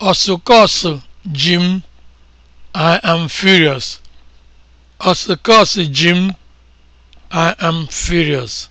Ọsụkọsụ ji m, I am furious. I am furious.